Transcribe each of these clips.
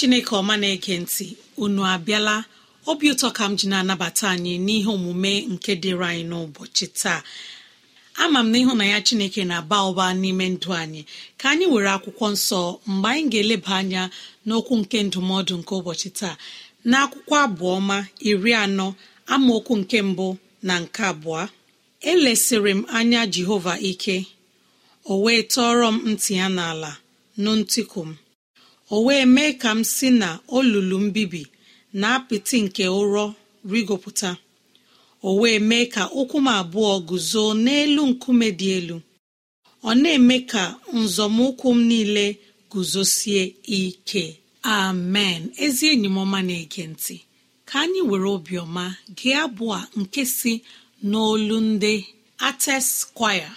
chineke ọma na ege ntị unu abịala obi ụtọ ka m ji na-anabata anyị n'ihe omume nke dịrị anyị n'ụbọchị taa ama m na ịhụ na ya chineke na-aba ụba n'ime ndụ anyị ka anyị were akwụkwọ nsọ mgbe anyị ga-eleba anya n'okwu nke ndụmọdụ nke ụbọchị taa na akwụkwọ abụọma iri anọ amaokwu nke mbụ na nke abụọ elesịrị m anya jehova ike o wee tọọrọ m ntị ya n'ala nụ ntịkụ m o wee mee ka m si na olulu mbibi na apịtị nke ụrọ rigopụta o wee mee ka ụkwụ m abụọ guzo n'elu nkume dị elu ọ na-eme ka nzọmụkwụ m niile guzosie ike amen ezi enyi m ọma na-ege ntị ka anyị were obiọma gị abụọ nke si n'olu ndị ates kwaya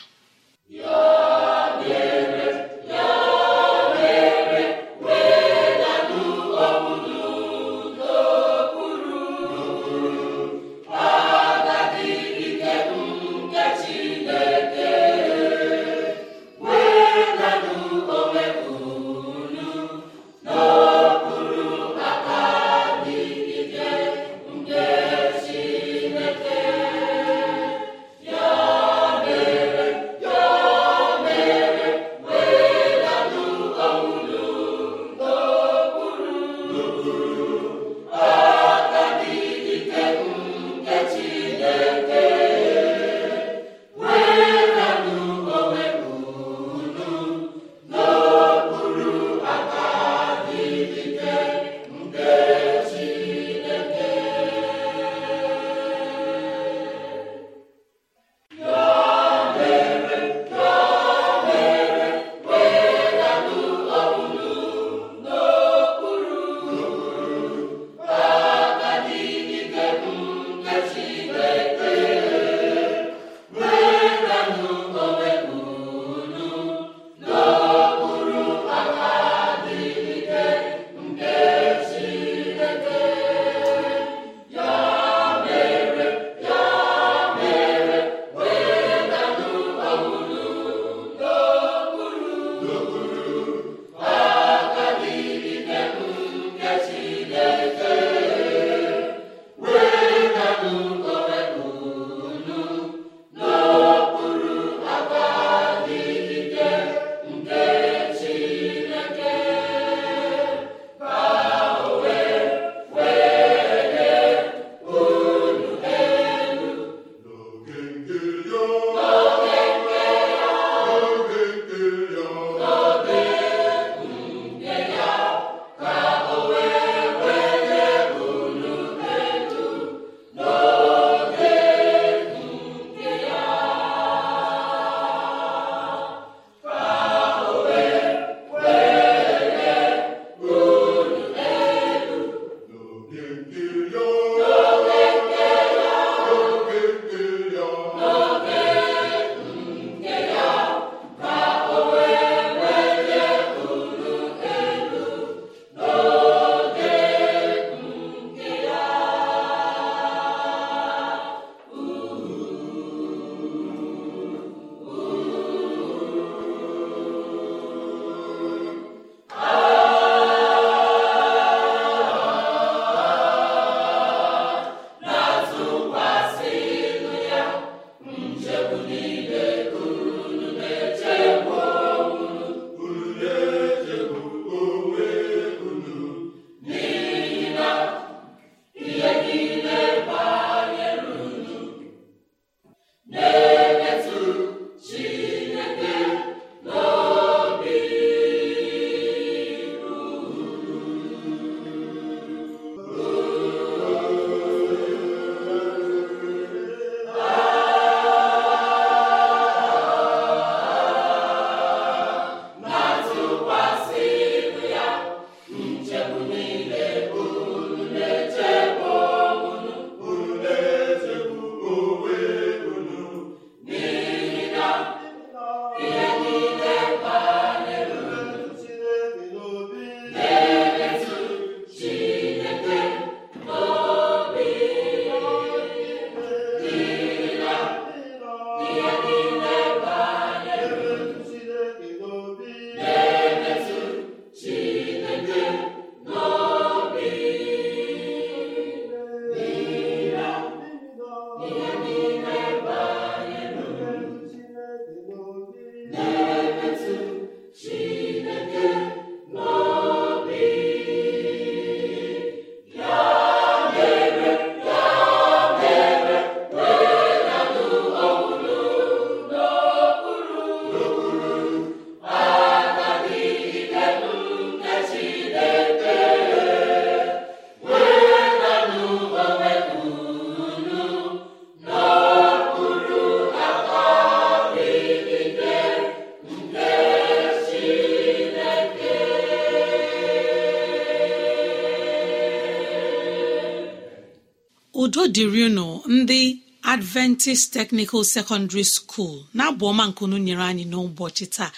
adventist technical secondary school na abụọma nkunu nyere anyị n'ụbọchị taa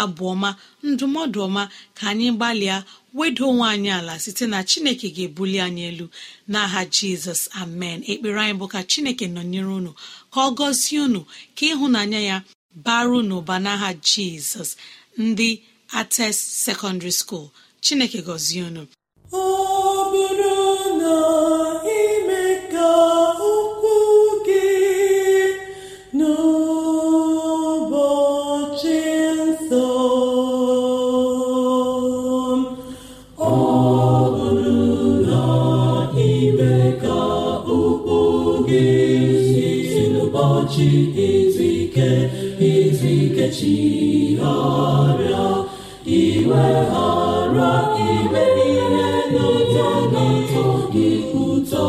abụọma ndụmọdụ ọma ka anyị gbalịa wedo onwe anyị ala site na chineke ga-ebuli anyị elu n'aha jizọs amen ekpere anyị bụ ka chineke nọnyere unu ka ọ gọzie unu ka ịhụnanya ya baru n'ụba n'aha jizọs ndị ates secondary school chineke gọzie unu ụbọchị izu ike izu ike chigharịa iweghara ime niile n'ụjọ na-atọ gị ụtọ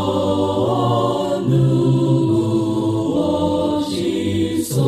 n'ụbọchị nsọ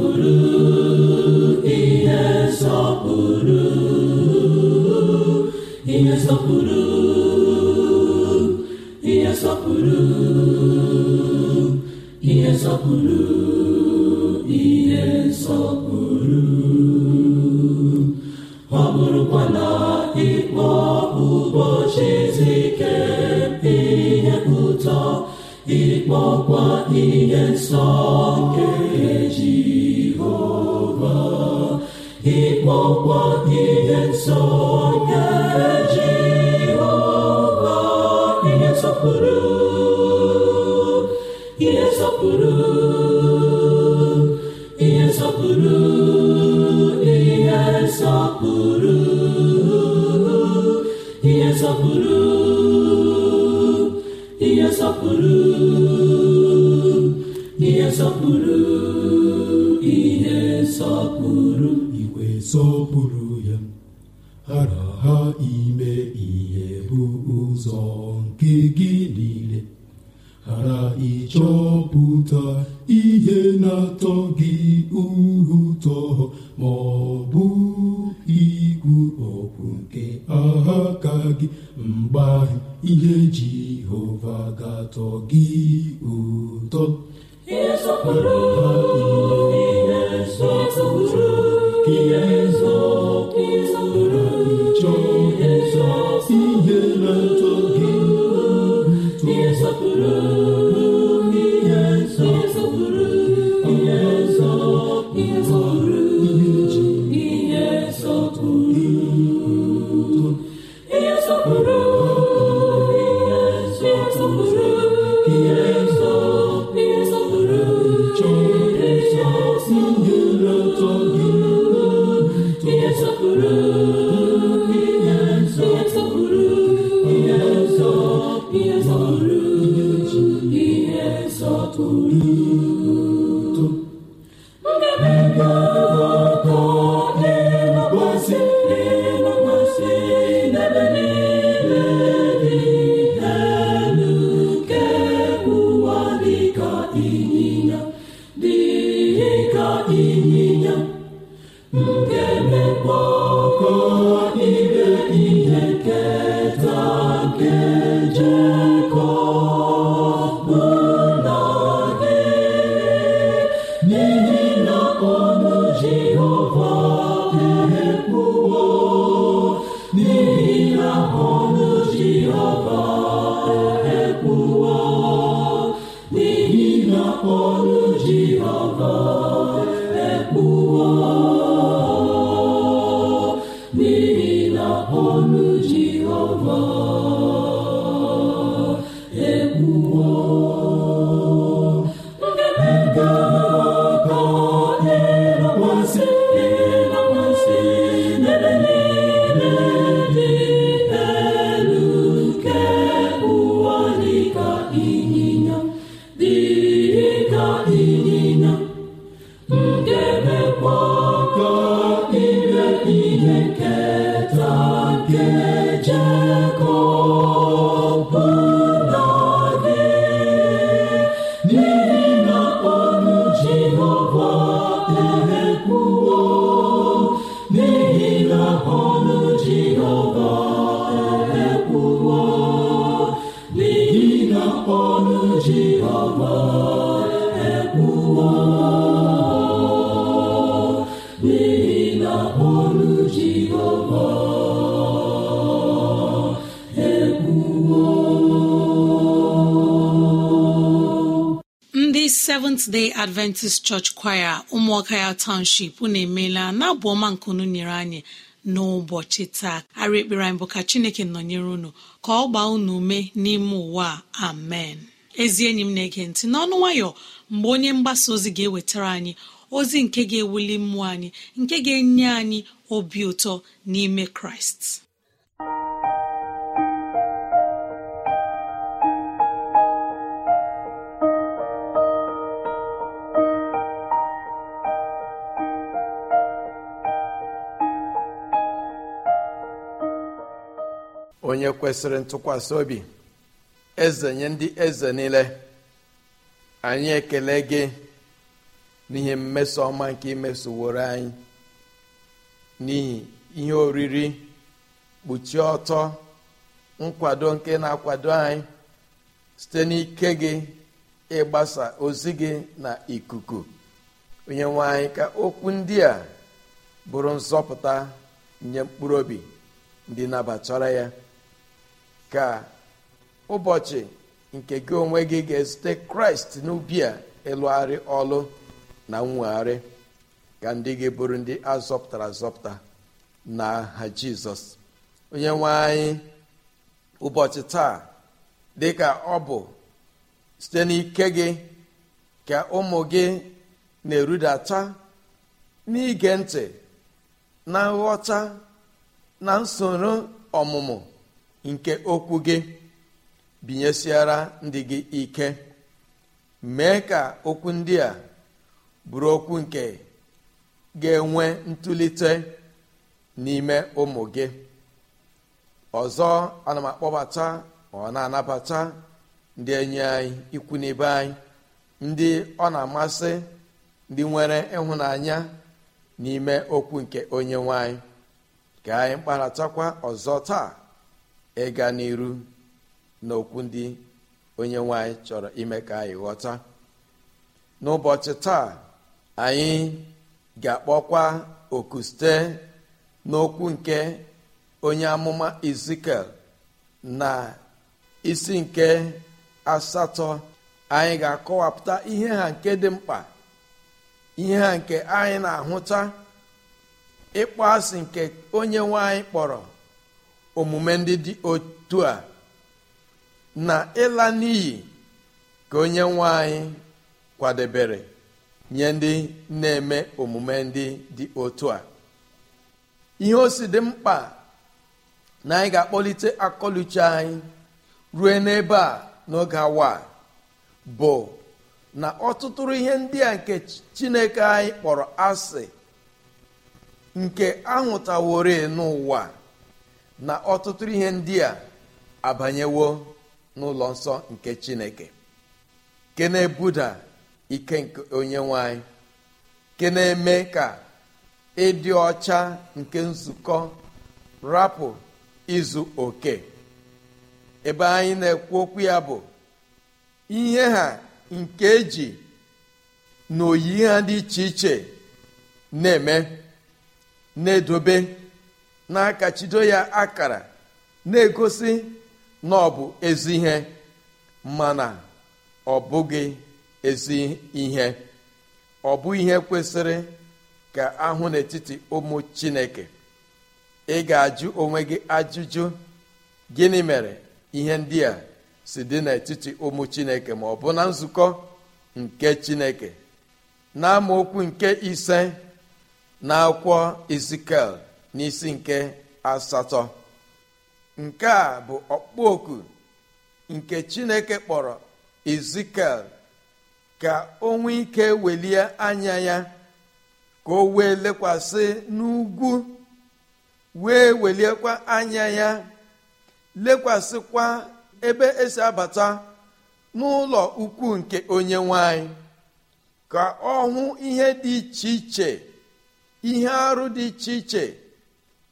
nsọpụrụ ihe nsọpụrụ nsọpụrụ ihe nsọpụrụ ọ̀tọ̀ gị seventh adventist church kwaya ụmụọka ya township unu emeela na abụ ọma unu nyere anyị n'ụbọchị taa arị ekpere anyị bụ ka chineke nọnyere unu ka ọ gbaa unu ume n'ime ụwa amen ezi enyi m na-ege ntị n'ọnụ nwayọ mgbe onye mgbasa ozi ga-ewetara anyị ozi nke ga-ewuli mmụọ anyị nke ga-enye anyị obi ụtọ n'ime kraịst onye kwesịrị ntụkwasị obi eze nye ndị eze niile anyị ekele gị n'ihe mmeso ọma nke imesoworo anyị n'ihi ihe oriri kpuchie ọtọ nkwado nke na-akwado anyị site n'ike gị ịgbasa ozi gị na ikuku onye nwe anyị ka okwu ndị a bụrụ nzọpụta nye mkpụrụ obi ndị nabatara ya ka ụbọchị nke gị onwe gị ga-ezute kraịst n'ubi a ịlụgharị ọlụ na nwegharị ka ndị gị bụrụ ndị azọpụtara azọpụta na ha jizọs onye nwe anyị ụbọchị taa dị ka ọ bụ site n'ike gị ka ụmụ gị na-erudata n'ige ntị na nghọta na nsoro ọmụmụ nke okwu gị binyesiara ndị gị ike mee ka okwu ndị a bụrụ okwu nke ga-enwe ntụlite n'ime ụmụ gị ọzọ ana m akpọbata ọ na-anabata ndị enyi anyị ikwu n'ibe anyị ndị ọ na-amasị ndị nwere ịhụnanya n'ime okwu nke onye nwanyị ka anyị kparatakwa ọzọ taa ịga n'iru n'okwu ndị onye nwanyị chọrọ ime ka anyị ghọta n'ụbọchị taa anyị ga-akpọkwa oku site n'okwu nke onye amụma izikel na isi nke asatọ anyị ga-akọwapụta ihe ha nke dị mkpa ihe ha nke anyị na-ahụta ịkpọ asị nke onye nwanyị kpọrọ omume ndị dị otu a na ịla n'iyi ka onye nwe anyị kwadebere nye ndị na-eme omume ndị dị otu a ihe o si dị mkpa na anyị ga-akpọlite akọluche anyị rue n'ebe a n'oge awa bụ na ọtụtụrụ ihe ndị a nke chineke anyị kpọrọ asị nke ahụtawori n'ụwa na ọtụtụ ihe ndị a abanyewo n'ụlọ nsọ nke chineke ke na-ebuda ike nke onye nwanyị na-eme ka ịdị ọcha nke nzukọ rapụ izu oke ebe anyị na-ekwu okwu ya bụ ihe ha nke eji na oyi ha dị iche iche na-eme na-edobe na-akachido ya akara na-egosi na ọ bụ ezi ihe na ọ bụghị ezi ihe ọ bụ ihe kwesịrị ka ahụ n'etiti ụmụ chineke ị ga-ajụ onwe gị ajụjụ gịnị mere ihe ndị a si dị n'etiti ụmụ chineke ma ọ bụ na nzukọ nke chineke na amaokwu nke ise na akwụkwọ izikel n'isi nke asatọ nke a bụ okpoku nke chineke kpọrọ ezikiel ka o nwee ike welie anya ya ka o wee lekwasị n'ugwu wee weliekwa anya ya lekwasịkwa ebe esi abata n'ụlọ ukwu nke onye nwanyị ka ọ hụ ihe dị iche iche ihe arụ dị iche iche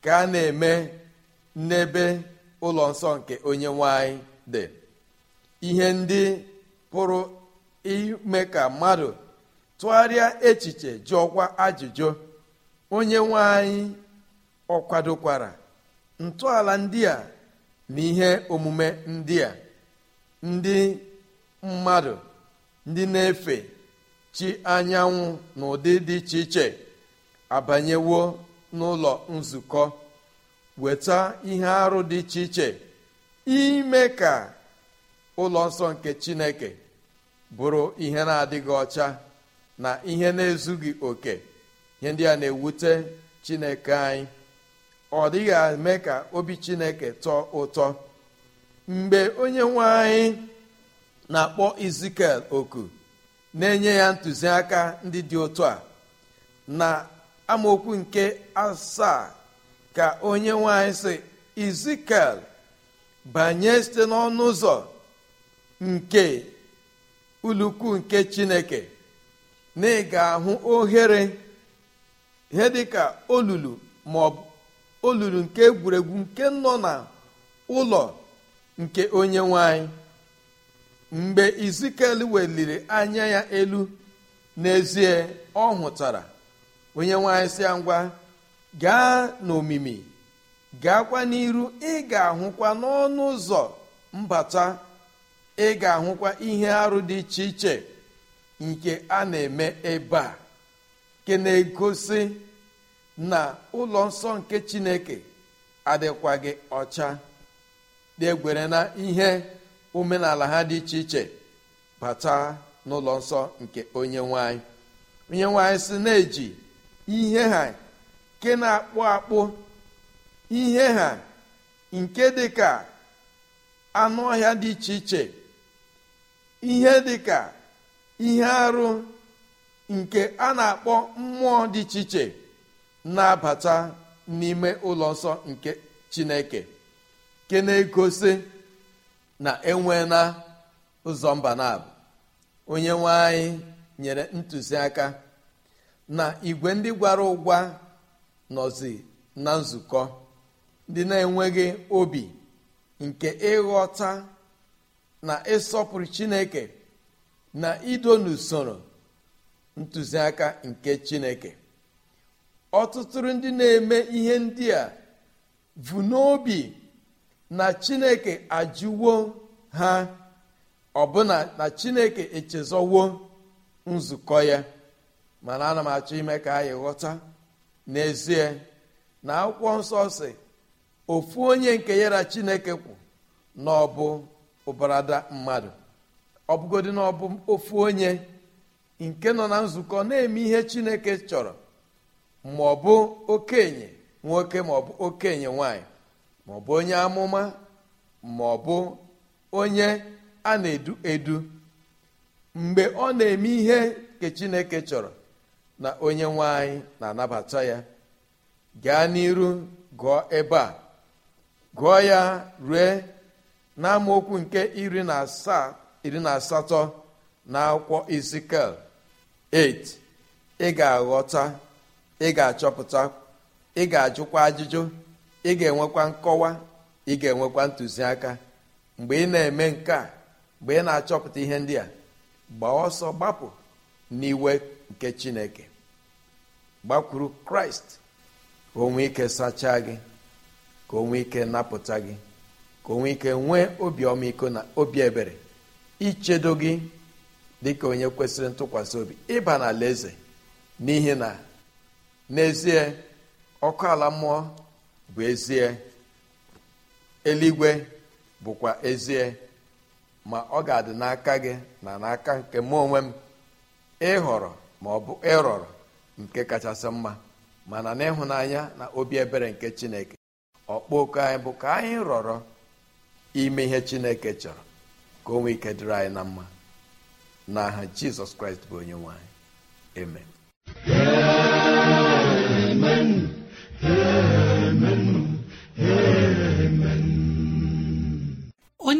ka a na-eme n'ebe ụlọ nsọ nke onye nwanyị dị ihe ndị pụrụ ime ka mmadụ tụgharịa echiche jụọkwa ajụjụ onye nwanyị ọkwadokwara kwadokwara ntọala ndị a na ihe omume ndị a ndị mmadụ ndị na-efe chi anyanwụ na ụdị dị iche iche abanyewo n'ụlọ nzukọ weta ihe arụ dị iche iche ime ka ụlọ nsọ nke chineke bụrụ ihe na-adịghị ọcha na ihe na-ezughị oke ihe ndị a na-ewute chineke anyị ọ dịghị eme ka obi chineke tọọ ụtọ mgbe onye nwe anyị na-akpọ izikel oku na-enye ya ntụziaka ndị dị otu a na amaokwu nke asaa ka onye nwanyị si izikel banye site n'ọnụ ụzọ nke ulukwu nke chineke na ị ga-ahụ ohere ihe dịka olulu maọbụ olulu nke egwuregwu nke nọ na ụlọ nke onye nwanyị mgbe izikel weliri anya ya elu n'ezie ọ hụtara onye nwaanyị si ya ngwa gaa n'omimi gaakwa n'iru ị ga-ahụkwa n'ọnụ ụzọ mbata ị ga-ahụkwa ihe arụ dị iche iche nke a na-eme ebe a nke na-egosi na ụlọ nsọ nke chineke adịkwaghị ọcha degwere na ihe omenala ha dị iche iche bata n'ụlọ nsọ nke onye nwanyị onye nwanyị si na-eji ihe ha nke na-akpụ akpụ ihe ha nke dị ka anụ ọhịa dị iche iche ihe dị ka ihe arụ nke a na-akpọ mmụọ dị iche iche na-abata n'ime ụlọ nsọ nke chineke nke na-egosi na enwe na ụzọ mba onye nwe anyị nyere ntụziaka na igwe ndị gwara ụgwa nọzi na nzukọ ndị na-enweghị obi nke ịghọta na ịsọpụrụ chineke na ido n'usoro ntụziaka nke chineke ọtụtụ ndị na-eme ihe ndị a bụ n'obi na chineke ajụwo ha ọbụna na chineke echezọwo nzukọ ya mana ana m achọ ime ka anyị ghọta n'ezie na akwụkwọ nsọ si ofu onye nke yara chineke kwụ na ọ bụ ụbarada mmadụ ọ bụgodị na ọ bụ ofu onye nke nọ na nzukọ na-eme ihe chineke chọrọ ma ọ bụ okenye nwoke ma ọ bụ okenye nwanyị ma ọ bụ onye amụma ma ọ bụ onye a na-edu edu mgbe ọ na-eme ihe nke chineke chọrọ na onye nwe na-anabata ya gaa n'iru gụọ ebe a gụọ ya rue n'amaokwu nke iri na asaa iri na asatọ na akwụkwọ Ezikiel 8 ị ga-aghọta ị ga-achọpụta ị ga-ajụkwa ajụjụ ị ga-enwekwa nkọwa ị ga-enwekwa ntụziaka mgbe ị na-eme nke a mgbe ị na-achọpụta ihe ndị a gbaa ọsọ gbapụ n'iwe nke Chineke gbakwuru kraịst ka onwe ike sachaa gị ka onwe ike napụta gị ka onwe ike nwee obi ọmịiko na obi ebere ichedo gị dịka onye kwesịrị ntụkwasị obi ịba na eze n'ihi na n'ezie ọkụ ala mmụọ bụ ezie eluigwe bụkwa ezie ma ọ ga-adị n'aka gị na n'aka nke onwe m ịhọrọ ma ọ bụ ịrọrọ nke kachasị mma mana n'ịhụnanya na obi ebere nke chineke oku anyị bụ ka anyị rọrọ ime ihe chineke chọrọ ka onwe ike dịrị anyị na mma n'aha jizọs kraịst bụ onye nwanyị. eme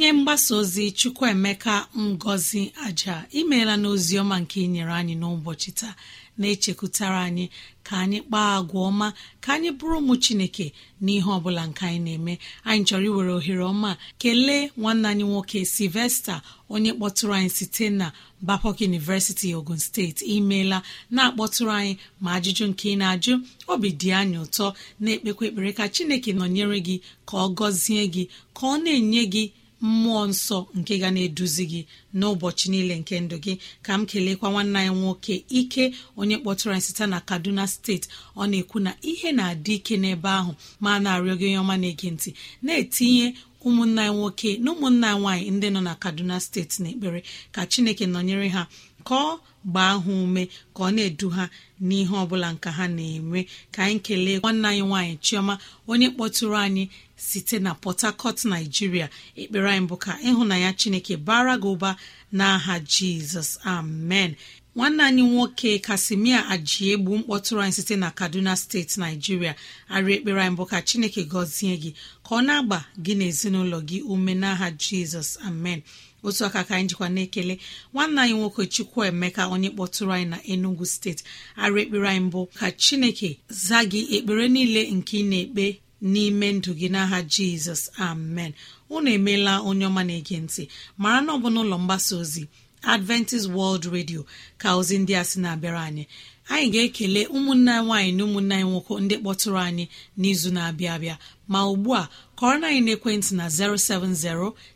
onye mgbasa ozi chukwuemeka ngozi aja imeela n'ozi ọma nke inyere anyị n'ụbọchị taa na-echekwutara anyị ka anyị kpaa agwa ọma ka anyị bụrụ ụmụ chineke n'ihe ọbụla nke anyị na-eme anyị chọrọ iwere ohere ọma kelee nwanne anyị nwoke silvesta onye kpọtụrụ anyị site na bapok University Ogun steeti imeela na-akpọtụrụ anyị ma ajụjụ nke ị na-ajụ obi dị anyị ụtọ na-ekpekwa ekpere ka chineke nọnyere gị ka ọ gọzie gị ka ọ na-enye gị mmụọ nsọ nke ga na-eduzi gị n'ụbọchị niile nke ndụ gị ka m kelekwa nwanne anyị nwoke ike onye kpọtụrụ anyị site na kaduna steeti ọ na-ekwu na ihe na-adị ike n'ebe ahụ ma na-arịọ gị onye ọma na-ege ntị na-etinye ụmụnna anyị nwoke na ụmụnna anyị nwaanyị ndị nọ na kaduna steeti na ekpere ka chineke nọnyere ha ka ọ gbaa ha ume ka ọ na-edu ha n'ihe ọ bụla nka ha na-eme ka anyị kelee nwanne anyị nwaanyị chioma onye kpọtụrụ anyị site na port harcourt naijiria ekpere anyị bụ ka ịhụnanya chineke bara gị ụba n'aha jizọs amen nwanne anyị nwoke kasimia ajiegbu mkpọtụrụ anyị site na kaduna steeti naijiria arị ekpere anyị bụ ka chineke gọzie gị ka ọ na-agba gị na ezinụlọ gị ume n'aha jizọs amen otu aka ka anyị jikwa na-ekele nwanne anyị nwoke chukwu emeka onye kpọtụrụ anyị na enugu steeti arị ekpere anyị mbụ ka chineke zaa gị ekpere niile nke ị na-ekpe n'ime ndụ gị n'aha jizọs amen unu emeela onye ọma na-ege ntị mara na ọ bụ n'ụlọ mgbasa ozi adventist world radio ka ozi ndị a sị na-abịara anyị anyị ga-ekele ụmụnna nwaanyị na ụmụnna anyị nwoke ndị kpọtụrụ anyị n'izu na-abịa abịa ma ugbu a kọrọ na anyị n'ekwentị na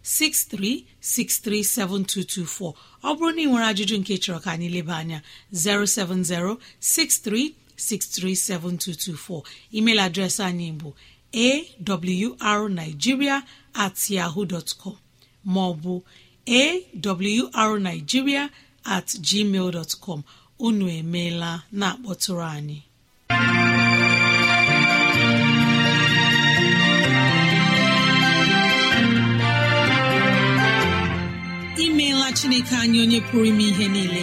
07063637224 ọ bụrụ na ị nwere ajụjụ nke chọrọ ka anyị leba anya 07063637224 email adreesị anyị bụ awrnigeria at yahoo dọtkọm maọbụ awrnigeria at gmail com unu emeela na-akpọtụrụ anyị imeela chineke anyị onye pụrụ ime ihe niile